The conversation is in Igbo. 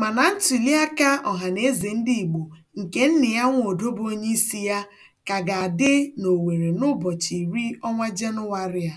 Mana ntụliaka ọhanaeze ndị Igbo nke ya nna Nnịyanwodo bụ onyeisi ya ka ga-adị n'Owere n'ụbọchị iri ọnwa Jenụwarị a.